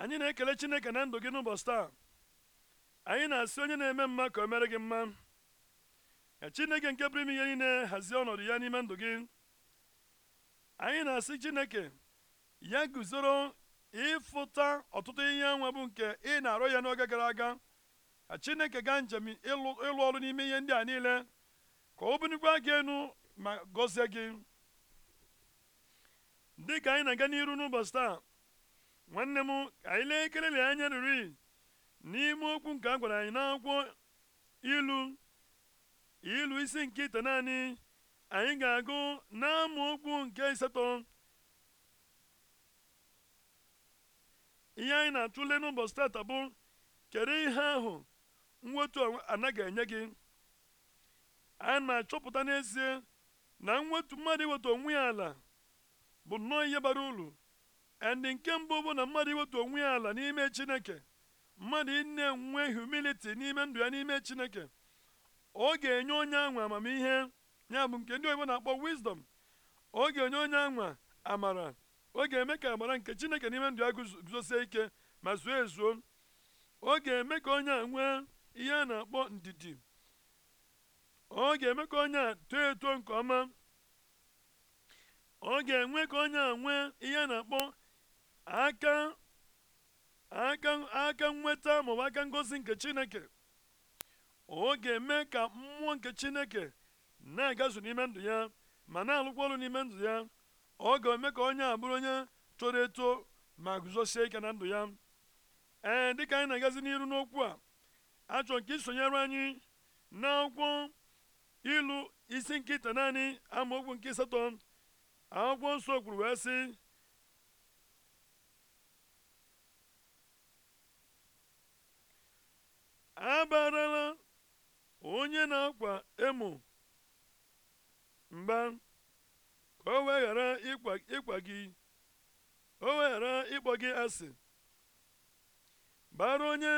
anyị na-ekele chineke na ndụ gị n'ụbọchị taa anyị na-asị onye na-eme mma ka o mere gị mma ka chineke nke pụrụ ime ihe niile hazie ọnọdụ ya n'ime ndụ gị anyị na-asị chineke ya guzoro ịfụta ọtụtụ ihe nwa bụ nke ị na-arụ ya n'oge gara aga ka chineke gaa njem ịlụ ọrụ n'ime ihe ndị a niile ka o binigwa gị enu ma gọzie gị dị ka anyị na-aga n'iru n'ụbọchị taa nwanne m ka anyị lee kelele anya riri n'ime okwu nke a gwara anyị n'akwụkwọ ilu ilu isi nke ite naanị anyị ga-agụ okwu nke iseto ihe anyị na-atụle n'ụbọchị tata bụ kedu ihe ahụ mwetu anaghị enye gị a na-achọpụta n'ezie na mwetu mmadụ iweta onwe ya ala bụ nnọọ ihe bara uru ndị nke mbụ bụ na mmadụ iwetu onwe ya ala n'ime chineke mmadụ ịna enwe humility n'ime ndụ ya n'ime chineke ọ ga-enye onye anwa amamihe ya bụ nke ndị oyibo na-akpọ wisdom ọ ga-enye onye anwa amara ọ ga-eme ka amara nke chineke n'ime ndụ ya guzosie ike ma zuo ezuo ọ ga-eme ka onye a nwee ihe a na-akpọ ndidi ọ ga-eme ka onye a too eto nke ọma ọ ga-enwe ka onye a nwee ihe a na-akpọ aka aka aka nweta maọbụ aka ngosi nke chineke ọ ga-eme ka mmụọ nke chineke na-agazu n'ime ndụ ya ma na-alụkwa ọrụ n'ime ndụ ya ọ ga-eme ka onye abụrụ onye toro eto ma guzosie ike na ndụ ya ee dịka anyị na-agazi n'iru n'okwu a achọ nke isonyere anyị n'akwụkwọ ilu isi nkịta naanị amaokwu nke asatọ akwụkwọ nsọ kwuru wee sị onye na-akwa emo mba ka o wee ịkwa gị o wee ịkpọ gị asị bara onye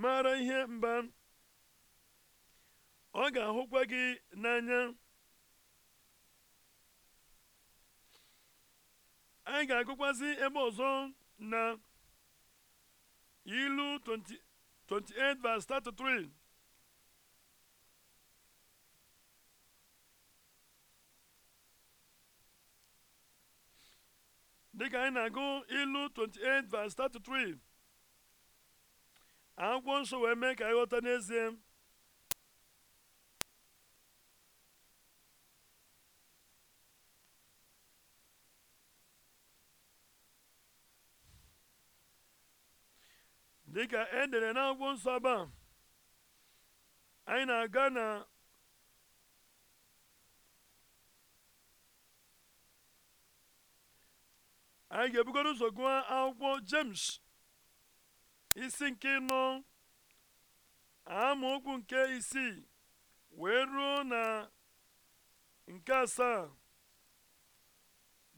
maara ihe mba ọ ga-ahụkwa gị n'anya anyị ga-agụkwazi ebe ọzọ na ilu 20 28, verse 33. anyị na-agụ ilu 28 verse 33 akwụkwọ nsọ wee mee ka anyị ghọta n'ezie dịka e dere n'akwụkwọ nsọ ebe a anyị na-aga na anyị ga-ebugoro ụzọ gụọ akwụkwọ James isi nke nọ amaokwu nke isii wee ruo na nke asaa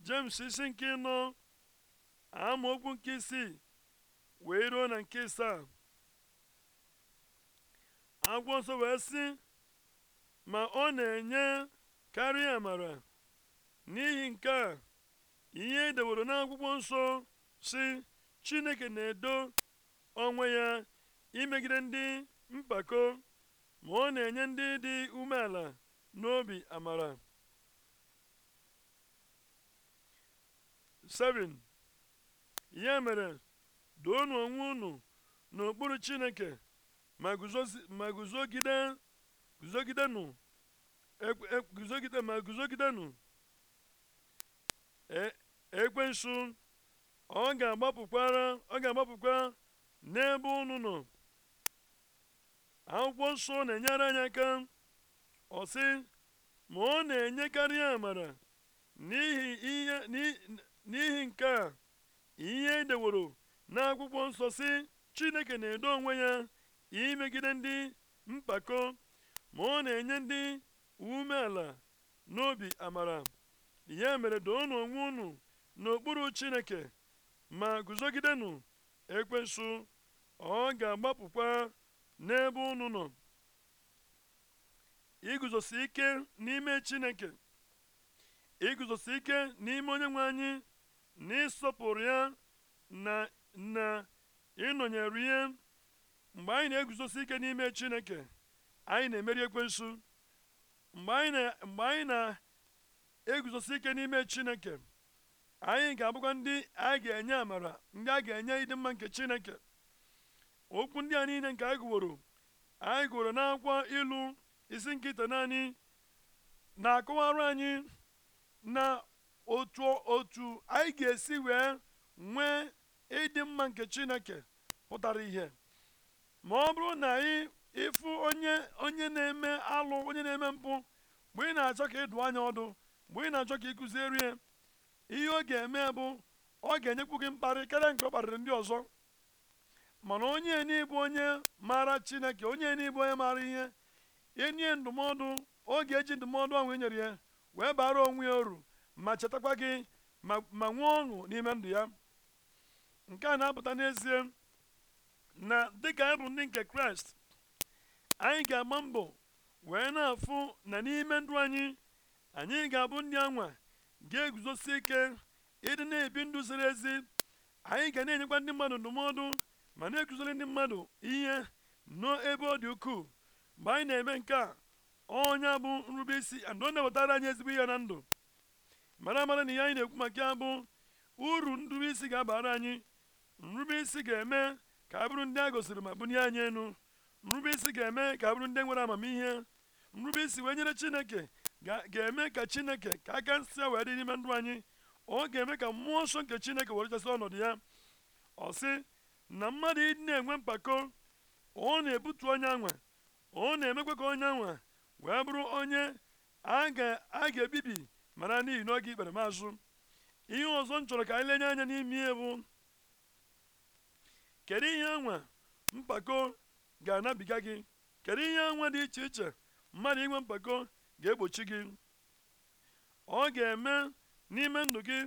James isi nke nọ amaokwu nke isii wee ruo na nke saa agwọ nsọ wee sị ma ọ na-enye karịa amara n'ihi nke a ihe edeworo n'akwụkwọ nsọ si chineke na-edo onwe ya imegide ndị mpako ma ọ na-enye ndị dị umeala n'obi amara 7 ya mere doonụ onwe unu n'okpuru chineke ma guzogide guzogidenụ e, e, guzogide e, ekwensu ọ ga agbapụkwa n'ebe unu nọ akwụkwọ nsọ na-enyere anyị aka ọ ma ọ na-enyekarị amara n'ihi n'ihi nke a ihe edeworo n'akwụkwọ nsọ si chineke na-edo onwe ya imegide ndị mpako ma ọ na-enye ndị umeala n'obi amara ya mere doonụ onwe unu n'okpuru chineke ma guzogidenụ ekwensu ọ ga-agbapụkwa n'ebe unu nọ iguzosi ike n'ime chineke iguzosi ike n'ime onye nwe anyị na ya na na ịnọnyere ihe mgbe anyị na-eguzosi ike n'ime chineke anyị na-emeri ekwensu mgbe anyị na-eguzosi ike n'ime chineke anyị ga-abụkwa ndị a ga-enye amara ndị a ga-enye ịdị mma nke chineke okwu ndị a niile nke a gụworo anyị gụworo n'akwụkwọ ilu isi nkịta naanị na-akọwara anyị na otu otu anyị ga-esi wee nwee ịdị mma nke chineke pụtara ihe ma ọ bụrụ na ị ịfụ onye onye na-eme alụ onye na-eme mpụ mgbe ị na-achọ ka ịdụ anya ọdụ mgbe ị na-achọ ka ị ihe ọ ga-eme bụ ọ ga-enyekwu gị mkparị karịa nke ọ kparịrị ndị ọzọ mana onye n'ịbụ onye maara chineke onye n'ịbụ onye maara ihe enye ndụmọdụ oge ga-eji ndụmọdụ ahụ e nyere ya wee bara onwe ya uru ma chetakwa gị ma nwee ọṅụ n'ime ndụ ya nke a na-apụta n'ezie na dịka anyị bụ ndị nke kraịst anyị ga-agba mbọ wee na-afụ na n'ime ndụ anyị anyị ga-abụ ndị anwa ga-eguzosi ike ịdị na-ebi ndụ ziri ezi anyị ga na-enyekwa ndị mmadụ ndụmọdụ ma na-ekuziri ndị mmadụ ihe n'ebe ọ dị ukwuu mgbe anyị na-eme nke a onye bụ nrube isi andụ ọ na-ewetara anyị ezigbo ihe na ndụ mara amara na ihe anyị na-ekwu maka ya bụ uru nrube isi ga-abara anyị nrube isi ga-eme ka a bụrụ ndị a gosiri ma bulie anyị enu nrube isi ga-eme ka a bụrụ ndị nwere amamihe nrube isi wee nyere chineke ga-eme ka chineke ka aka nsị a wee dị n'ime ndụ anyị ọ ga-eme ka mmụọ nsọ nke chineke werechasị ọnọdụ ya ọ sị na mmadụ ịdị na-enwe mpako ọ na-ebutu onye anwa ọ na-emekwa ka onye anwa wee bụrụ onye a ga-ebibi mara n'ihi na oge ikpere mazụ ihe ọzọ m chọrọ ka anyị lenye anya n'ime ihe bụ kedu ihe enwe mpako ga-anabiga gị kedu ihe enwe dị iche iche mmadụ inwe mpako ga-egbochi gị ọ ga-eme n'ime ndụ gị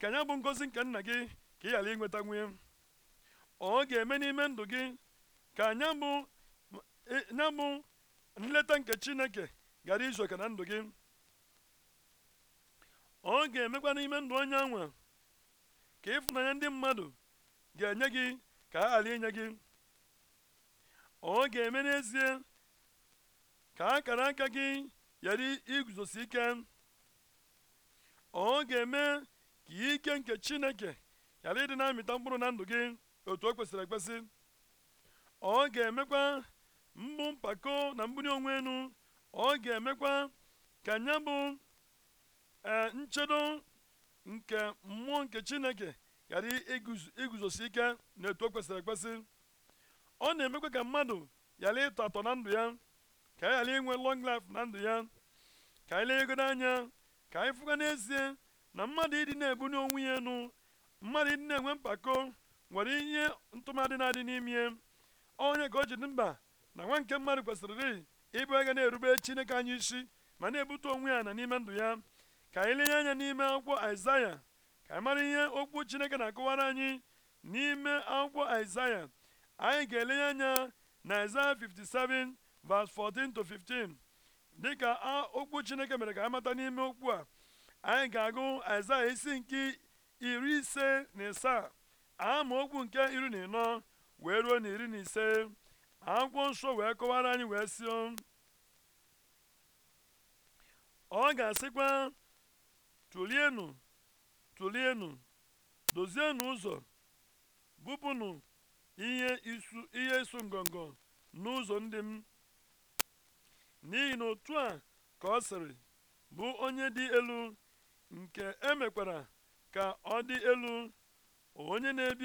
ka ya bụ ngozi nke nna gị ka ị ghara inweta nwunye ọ ga-eme n'ime ndụ gị ka nya bụ nya e, nleta nke chineke ghara izu oke na ndụ gị ọ ga-emekwa n'ime ndụ onye nwe ka ịfụnanya ndị mmadụ ga-enye gị ka a ghara gị ọ ga-eme n'ezie ka akara aka gị ghara iguzosi ike ọ ga-eme ka ike nke chineke ghara ịdị na-amịta mkpụrụ na ndụ gị otu o kwesịrị ekwesị ọ ga-emekwa mgbụ mpako na mgburi onwe enu ọ ga-emekwa ka nya bụ eh, nchedo nke mmụọ nke chineke ghara iguzosi ike etu o kwesịrị ekwesị ọ na-emekwa ka mmadụ ghara ịtọ atọ na ndụ ya ka anyị ghara inwe long life na ndụ ya ka anyị ego anya ka anyị fụga n'ezie na mmadụ ịdị na-ebuli onwe ya elu mmadụ ịdị na-enwe mpako nwere ihe ntụmadị na-adị n'ime onye ka o ji dị mba na nwa nke mmadụ kwesịrị ịbụ ega na-erube chineke anya isi ma na-ebute onwe ya na n'ime ndụ ya ka anyị lenye anya n'ime akwụkwọ aịzaya ka anyị mara ihe okwu chineke na-akọwara anyị n'ime akwụkwọ Aịzaya anyị ga-elenye anya na Aịzaya 57 verse 14 to 15 dịka okwu chineke mere ka anyị mata n'ime okwu a anyị ga-agụ Aịzaya isi nke iri ise na ama okwu nke iri na ịnọ wee ruo na iri na ise akwụkwọ nsọ wee kọwara anyị wee si ọ ga-asịkwa tụlienụ tụlienụ dozienụ ụzọ bupụnụ ihe isu ihe isu ngọngọ n'ụzọ ndị m n'ihi na otu a ka ọ sịrị bụ onye dị elu nke emekwara ka ọ dị elu onye na-ebi